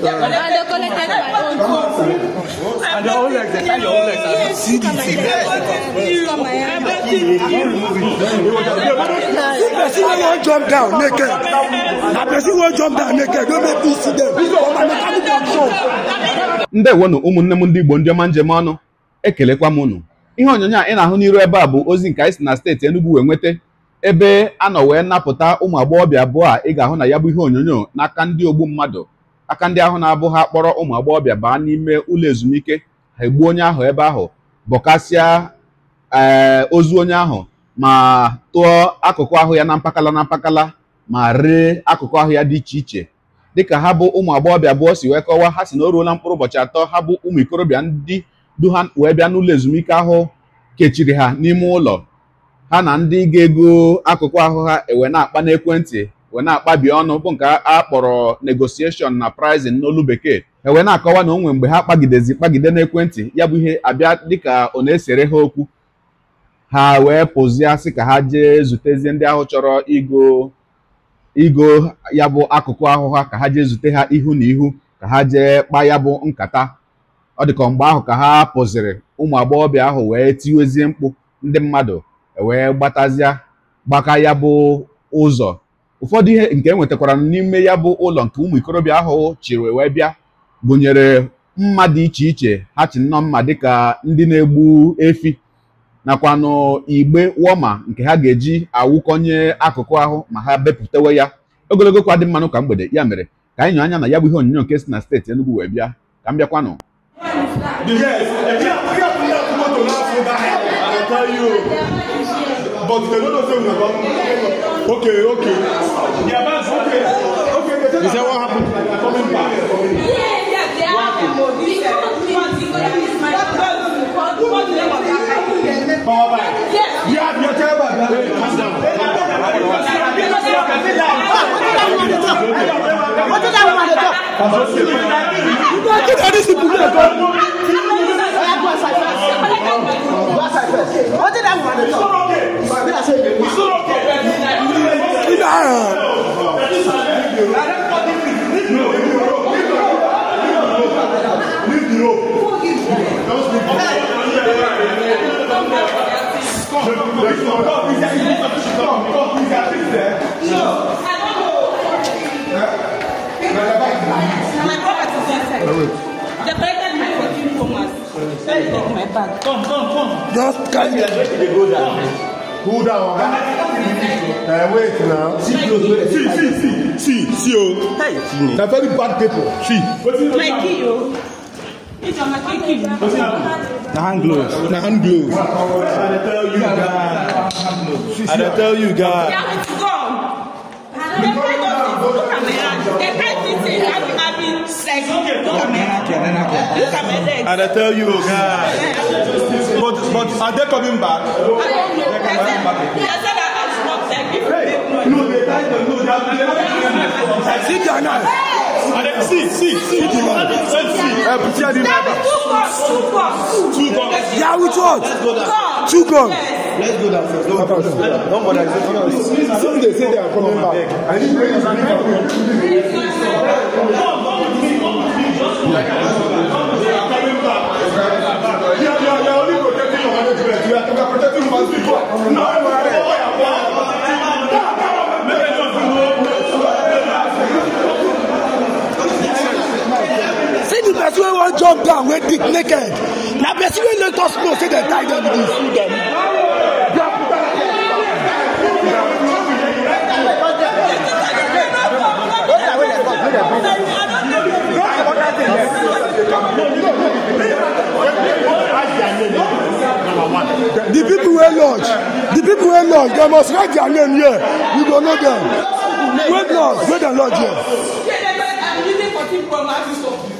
I don't like that. I don't like that. See the thing. person wey jump down naked. Na person wey jump down naked no make me see them. For my mechanical show. Ndewonu ụmụnne m ndị Igbo ndị ọma njem ọnụ ekelekwa m unu ihe onyonyo a ị na-ahụ n'iru ebe a bụ ozi nke anyị si na steeti Enugu wee nweta ebe a nọ wee napụta ụmụ agbọghọbịa abụọ a ị ga-ahụ na ya bụ ihe onyonyo n'aka ndị ogbu mmadụ aka ndị ahụ na-abụ ha kpọrọ ụmụ agbọghọbịa baa n'ime ụlọ ezumike ha egbuo onye ahụ ebe ahụ bọkasịa ee eh, ozu onye ahụ ma tụọ akụkụ ahụ ya na mpakala na mpakala ma ree akụkụ ahụ ya dị iche iche dịka ha bụ ụmụ agbọghọbịa abụọ si wee kọwaa ha si na o ruola mkpụrụ ụbọchị atọ ha bụ ụmụ ikorobịa ndị du ha wee bịa n'ụlọ ezumike ahụ kechiri ha n'ime ụlọ ha na ndị ga-ego akụkụ ahụ ha ewe na-akpa n'ekwentị wee na-akpabi ọnụ bụ nke a kpọrọ negotiation na prizin n'olu bekee e wee na-akọwa na onwe mgbe ha kpagidezi kpagide n'ekwentị ya bụ ihe abịa dịka ọ na-esere ha okwu ha wee pụzie sị ka ha jee zutezie ndị ahụ chọrọ igo igo ya bụ akụkụ ahụ ha ka ha jee zute ha ihu na ihu ka ha jee kpaa ya bụ nkata ọ dịka mgbe ahụ ka ha pụziri ụmụ agbọghọbịa ahụ wee tiwezie mkpu ndị mmadụ e wee gbatazịa gbaka ya bụ ụzọ ụfọdụ ihe nke enwetakwara n'ime ya bụ ụlọ nke ụmụ ikorobịa ahụ chịrị wee bịa gụnyere mma dị iche iche ha chi nnọọ mma dịka ndị na-egbu efi nakwanụ igbe wọma nke ha ga-eji awụkọnye akụkụ ahụ ma ha bepụtawe ya ogologo kwa dị mmanụ ka mgbede ya mere ka anyị nyụ anya na ya bụ ihe onyonyo nke si na steeti Enugu wee bịa ka m bịakwanụ Okay, okay. Yeah, that's okay. Okay, okay. Is that what happened? Coming back. Yeah, yeah, they are. Power back. Yeah, yeah, your table. Calm down. What did I want to talk? What did I want to talk? Come, come, come, come, come, come, please, come, come, please, at least there. Sure. I don't know. Huh? My brother is inside. The president my 14 Thomas. Sorry, take my bag. Come, come, come. Just carry me. Cool down. Uh, wait now. See, see, see, see, see, see, oh. Hey. They're very bad people. See. My key, oh. The hand gloves. The hand gloves. I tell you guys. I tell you guys. And I tell you guys, but, but are they coming back? They're coming back again. Hey, no, they tied the no, they are. I see their knife. And then see, see, see. Let's see. Uh, Two guns. Yeah, which one? Let's go down. Let's go down first. Don't bother. Don't bother. Some they say they are coming back. I need to bring you back. You are only protecting your hundred people. You are protecting one people. No, no. knock down wey dig naked na person wey let us know say dem tie dem dey sue the people wey lodge the people wey lodge dem must write their name here we go know dem wey lodge wey dem lodge here.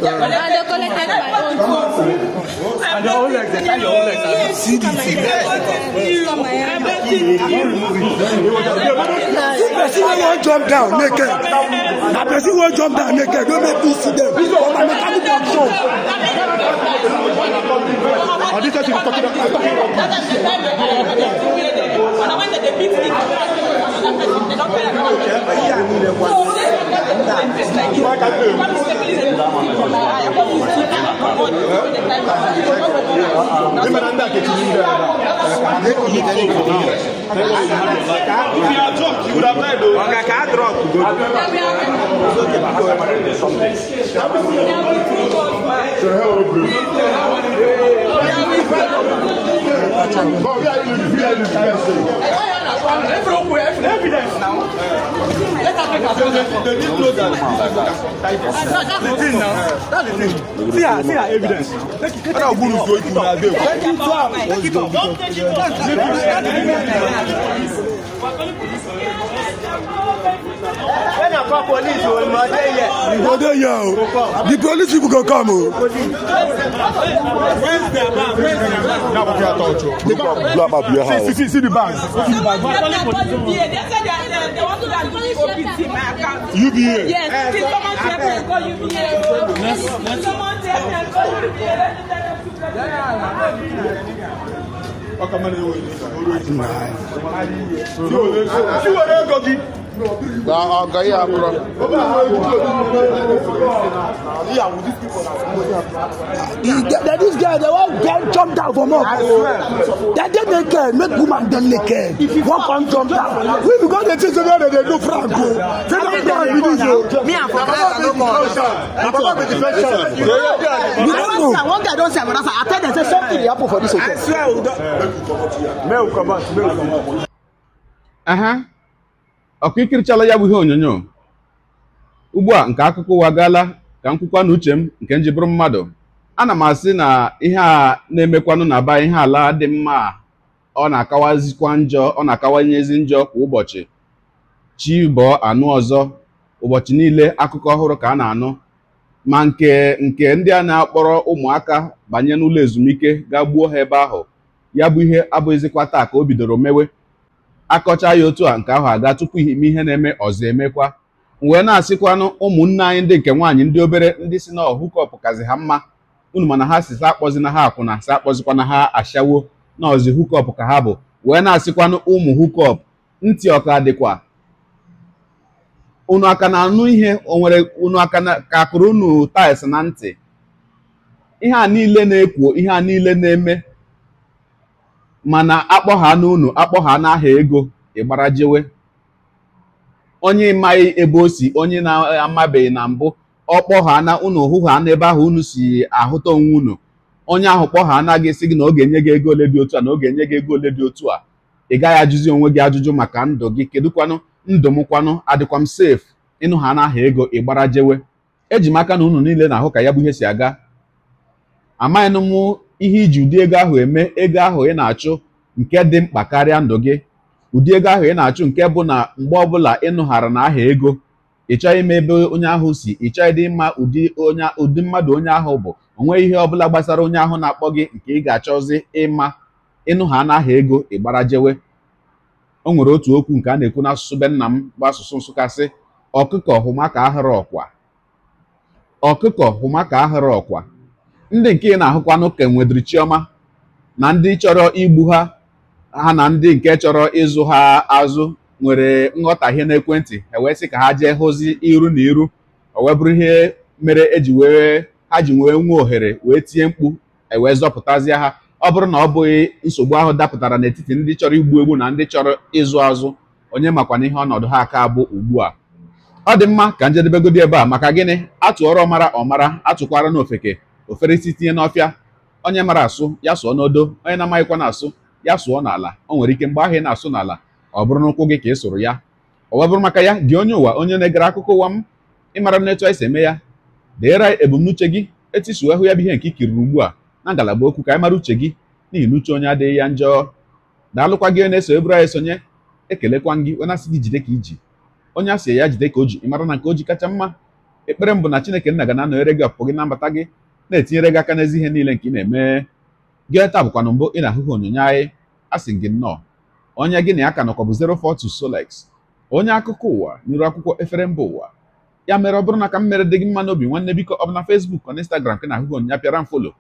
And they collected my own phone. And your own legs, see this. See person wey wan jump down make naked. Na person wey jump down make it. Don't make me to them. For my mechanic action. Are these guys you talking about? Talking about. They don't pay attention. Remember that getting you If you are drunk, you would have died though. Okay, can I drop? So how are evidence now. Let us make ourselves They didn't know that. That's the thing now. That's the thing. See her, see her evidence. Let it go. Let it go. Let it go. Don't take it off. When I call police, you will murder here. You go there, yo. The police people can come. Where's the bag? Where's the bag? Now, we can't touch you. See, see, see the bag. See the bag somebody calling UBA. They said they, they, uh, they want to eh, go OPT eh, my account. UBA? Yes. Uh, Please, eh, someone tell me and call UBA. Let's, let's. Someone tell me and call UBA. Let me tell them to go. Yeah, yeah, yeah. Ọkà mẹ́rin yóò yí. Tí o lè gòkì na ọgọ ihe abụrọ that this girl the one girl jump down for more that dey make care, make woman dem care. one come jump down we be go dey think say no they dey do frank o say no me and papa i no you don't know one guy don say another i tell dem say something dey happen for this hotel. i swear o don. make comot make comot. ọkụ ya bụ ihe onyonyo ugbu a nke akụkọ ụwa gaala ka m kwukwa na m nke m ji bụrụ mmadụ ana m asị na ihe a na-emekwanụ na aba ihe ala dị mma ọ na-akawazikwa njọ ọ na-akawanyezi njọ kwa ụbọchị chi bọọ anụ ọzọ ụbọchị niile akụkọ ọhụrụ ka a na-anụ ma nke nke ndị a na-akpọrọ ụmụaka banye n'ụlọ ezumike gaa gbuo ha ebe ahụ ya bụ ihe abụghịzikwa taa ka o bidoro mewe akọcha ya otu a nke ahụ aga tupu ime ihe na-eme ọzọ emekwa wee na-asịkwanụ ụmụnne anyị ndị nke nwaanyị ndị obere ndị si na hukọp kazi ha mma unu mana ha si sa akpọzi na ha akwụna sa na ha ashawo na ọzi hukọp ka ha bụ wee na-asịkwanụ ụmụ hukọp ntị ọka dịkwa unu aka na-anụ ihe o nwere unu aka ka akụrụ unu na ntị ihe a niile na-ekwu ihe a niile na-eme mana akpọha n'unu akpọha n'aha ego ịgbara jewe onye maghị ebe o si onye na-amabeghị na mbụ ọ kpọha na unu na ebe ahụ unu si ahụta onwe unu onye ahụ kpọha anaghị sị gị na ọ ga-enye gị ego ole dị otu a na ọ ga-enye gị ego ole dị otu a ị gaghị ajụzi onwe gị ajụjụ maka ndụ gị kedụkwanụ ndụ m kwanụ adịkwa m safe ịnụ ha n'aha ego ịgbara jewe eji m aka na unu niile na-ahụ ka ya bụ ihe si aga amaghị m ihe iji ụdị ego ahụ eme ego ahụ ị na-achụ nke dị mkpa karịa ndụ gị ụdị ego ahụ ị na-achụ nke bụ na mgbe ọbụla ị nụghara na aha ego ị chọghị ime ebe onye ahụ si ị chọghị ịdị mma ụdị onye ụdị mmadụ onye ahụ bụ onwe ihe ọbụla gbasara onye ahụ na-akpọ gị nke ị ga-achọzi ịma ịnụha n'aha ego ịgbara jewe o nwere otu okwu nke a na-ekwu n'asụsụ be nna m bụ asụsụ Nsụka sị ọkụkọ hụma ka ọkwa ọkụkọ hụma ka ahụrụ ọkwa ndị nke ị na-ahụkwanụ ka nwedịrị chioma na ndị chọrọ igbu ha ha na ndị nke chọrọ ịzụ ha azụ nwere nghọtahie n'ekwentị ewee sị ka ha jee hụzi iru na iru owee bụrụ ihe mere eji wee ha ji wee nwee ohere wee tie mkpu ewee zọpụtazie ha ọ bụrụ na ọ bụghị nsogbu ahụ dapụtara n'etiti ndị chọrọ igbu egbu na ndị chọrọ ịzụ azụ onye makwana ihe ọnọdụ ha aka bụ ugbu a ọ dị mma ka njedebegodi ebe a maka gịnị atụọrọ ọmara ọmara atụkwara n'ofeke ofere isi tinye n'ọfịa onye mara asụ ya sụọ n'odo onye na-amaghịkwa na-asụ ya sụọ n'ala o nwere ike mgbe ahụ ị na-asụ n'ala ọ bụrụ n'ụkwụ gị ka ị sụrụ ya ọwa bụrụ maka ya gị onye ụwa onye na-egere akụkọ ụwa m ịmara m n'etu anyị eme ya deere ebumnuche gị etisuo ahụ ya bụ ihe nke ikiriri ugbu a na ngalaba okwu ka anyị mara uche gị n'ihi na uche onye adịghị ya njọ daalụkwa gị na-eso eburu anyị esonye ekelekwa gị onye asị gị jide ka iji onye asị ya jide ka o ji ịmara na nke o ji kacha mma ekpere m bụ na Chineke nna ga na-anọnyere gị ọpụpụ gị na mbata gị na-etinyere gị aka n'ezi ihe niile nke ị na-eme gị ta bụkwana mbụ ị na-ahụhụ onyonyo anyị a sị gị nnọọ onye gị na ya ka nọkọ bụ 042 Solex onye akụkọ ụwa n'iru akwụkwọ efere mba ụwa ya mere ọ bụrụ na ka m mere dị gị mma n'obi nwanne biko ọ bụ na Facebook ọ na Instagram ka na-ahụhụ onyonyo pịara m folo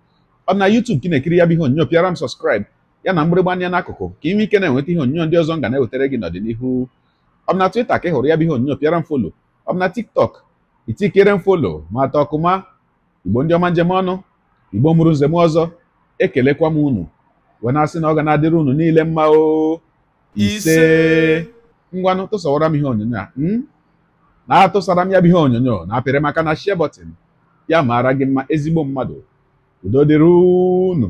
ọ bụ na YouTube ka ị na-ekiri ya bụ ihe onyonyo pịara m sọskraịb ya na mgbịrịgba anya n'akụkụ ka ị nwee ike na-enweta ihe onyonyo ndị ọzọ m ga na-ewetara gị n'ọdịnihu ọ na Twitter ka ị hụrụ ya bụ ihe onyonyo pịara m folo ọ bụ na TikTok itikere m folo ma atọ ọkụma igbo ndị ọma njem ọnụ igbo mụrụ nzem ọzọ ekelekwa m unu wee na-asị na ọ ga na-adịrị unu niile mma o ise ngwanụ tụsawara m ihe onyonyo a hmm? na atụsara m ya bụ ihe onyonyo na apịrị maka na share ya maara gị mma ezigbo mmadụ udo dịrị unu